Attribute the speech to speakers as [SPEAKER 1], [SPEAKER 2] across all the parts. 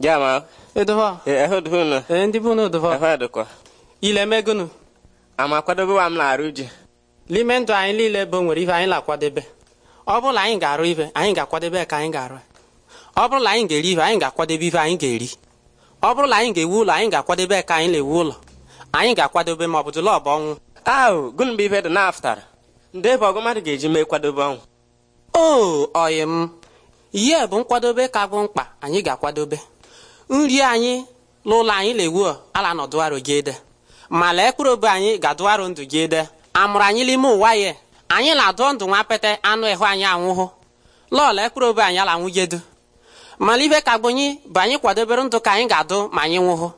[SPEAKER 1] Jama. Edowa. Ehud hunu. Ndị bụ n'edowa. Ehud kwa. Ile megunu. Ama kwadobewa m na-arụ ji. N'ime ndụ anyị nwere ihe anyị na-akwadebe. Ọ bụrụ na anyị ga-arụ anyị ga-akwadebe ka anyị ga-arụ. Ọ bụrụ na anyị ga-eri ibe, anyị ga anyị ga-eri. Ọ bụrụ na anyị ga-ewu ụlọ, anyị ga-akwadebe ka anyị na-ewu ụlọ. Anyị ga-akwadebe ma ọ bụ dụla ọ ọnwụ. Ahụ, gụnụ ife m. Ihe bụ nkwadobe ka bụ mkpa, anyị ga-akwadobe. nri anyị n'ụlọ anyị lewuo ala nọdụ gị ede ma lee mkpụrụ obi anyị ga-adụ arụ ndụ gị ede amụrụ anyị n'ime ụwa ya anyị na-adụọ ndụ nwa pete anụ ịhụ anyị anwụhụ lọọ lee mkpụrụ obi anyị ala anwụgedu mana ibe ka bụ bụ anyị kwadobere ndụ ka anyị ga-adụ ma anyị nwụhụ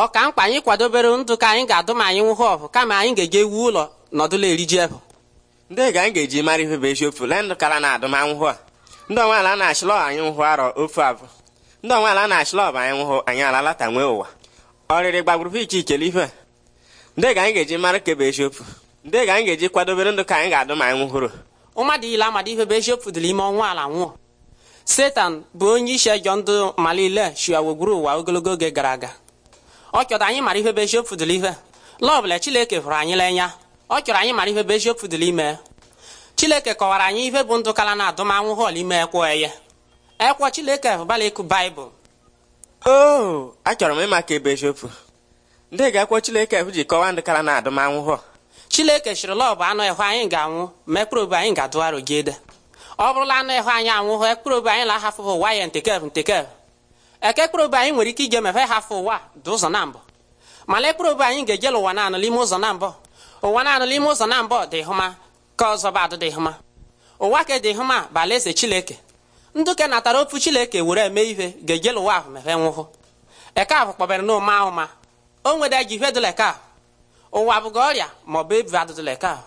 [SPEAKER 1] ọ ka mkpa anyị kwadobere ndụ ka anyị ga-adụ ma anyị nwụhụ
[SPEAKER 2] ọhụ kama anyị ga eji ewu ụlọ nọdụla eriji ebụ ndị ga anyị ga-eji mara bụ eziokwu ndụ kara na a ndị ọnwa ala na anyị nwụhụ arọ ofu abụ ndị onweala na-achịla ọba anyị nwụhụ anyị ala alalata nwee ụwa ọrịrị gbagburu iche iche ife ndị ga anyị ga-eji mara ka bụ eziokwu ndị ga anyị ga-eji kwadobere ndụ ka anyị ga-adụ ma anyị nwụhụrụ
[SPEAKER 1] ụmadụ ile amadi ife bụ eziokwu dịrị ime ọnwa ala nwụọ setan bụ onye isi ejọ ndụ malile shiawogburu ụwa ogologo oge gara aga ọ chọrọ anyị mara ife bụ eziokwu dịrị ife lọbụla Chineke fụrụ anyị n'anya ọ chọrọ anyị mara ife bụ eziokwu dịrị ime Chineke kọwara anyị ife bụ ndụ kala na adụmanwụ họl ime ekwo eye ekwa Chineke ahụbala ịkụ baịbụl
[SPEAKER 2] oo achọrọ m ịma ka ebe eziokwu ndị ga-ekwo Chineke ji kọwaa ndị kara na adụmanwụhọ Chineke chịrị lọ anụ ịhụ anyị ga-anwụ ma ekpụrụ anyị ga-adụgharụ gị ede
[SPEAKER 1] ọ bụrụla anụ ịhụ anyị anwụhụ ekpụrụ anyị na-ahafụfụ ụwa ya ntekev ntekev eke ekpụrụ anyị nwere ike ije mefe hafụ ụwa dị ụzọ na mbụ mana ekpụrụ anyị ga-ejela ụwa naanụ n'ime ụzọ na mbụ ụwa naanụ n'ime ụzọ na mbụ dị hụma ka ọzọ badụ dị hụma ụwa ka dị hụma bụ alaeze Chineke ndụke natara ofu chileke were eme ihe ga-ejela ụwa ahụ mehe nwụhụ eke ahụ kpọbere na ụma ahụ o nwere ji ihe dụla eke ahụ ụwa bụga ọrịa maọbụ ebi adụdụla eke ahụ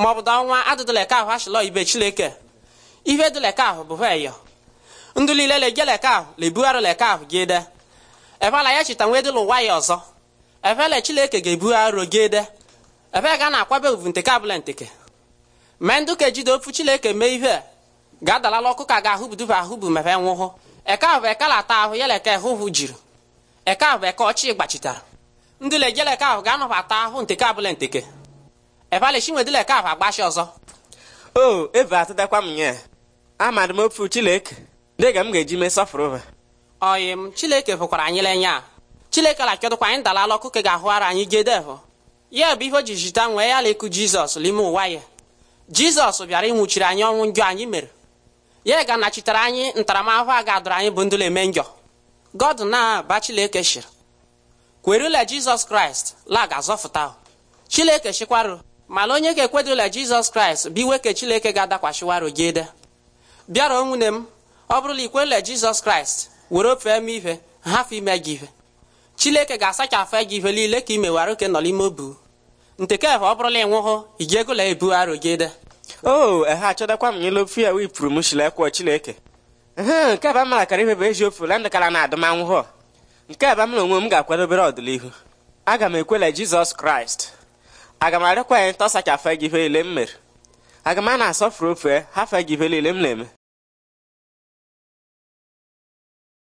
[SPEAKER 1] maọbụ da ọnwa adụdụla eke ahụ achịlọ ibe chileke ihe dụla eke ahụ bụ heyo ndụ lile lejela eke ahụ lebugharụla eke ahụ gị de efela ya chita nwee dịla ụwa ya ọzọ efele chileke ga-ebugharị gị de efe ga na-akwabe ovu nteke abụla nteke mee nduke ka e ofu chileke mee ihe ga-adalala ọkụ ka ga ahụ bụ ahụbu ma e nwụhụ eke ahụ bụ eke lata ahụ yala eke hụhụ jiri eke ahụ bụ eke ọchị gbachitara ndị lejele eke ahụ ga-anọbata ahụ
[SPEAKER 2] nteke abụla nteke ebalchinwedịla eke ahụ agbachi ọzọ o eve atadakwa m nye amadị m ofu chileke dịga m ga-eji mee sọfụrụ oyi
[SPEAKER 1] m chileke fụkwara anyị lenye a chileke lakịọdụkwa anyị dalala ọkụ ka ga-ahụara anyị gedevụ ya bụ ihe o ji jita nwee ya la ịkụ jizọs n'ime ụwa ya jizọs bịara ịnwụchiri anyị ọnwụ njọ anyị mere ya nachitere anyị ntaramahụhụ a ga-adụrụ anyị bụ ndụla eme njọ god na bachileke shiri kwerula jizọs kraịst lag azọfụta chileke shikwarụ mana onye ga le jizọs kraịst bụ iweke chileke ga-adakwashiwarụ gị ede bịara nwune m ọ bụrụla ikwerula jizọs kraịst were ofe m ihe hafụ ime gị ihe chileke ga-asachafụ gị ihe niile ka i mewara oke nọ n'ime obu
[SPEAKER 2] ntekefe ọ bụrụla ịnwụhụ ị ga-egola ebu arụ gị ede o oh, ehe achọdakwa m n'elu ofe ya wee pụrụ m shilekwa chineke ehe nke aba mara kara ife bụ ezi ofe landakara na adụmanwụhọ nke aba mara onwe m ga-akwado obere ọdịnihu aga m ekwela jizọs kraịst aga m arịọkwa ya ntọsa ka afe gị ife ile m mere aga m a na-asọfụrụ ofe ha fe gị ife m na-eme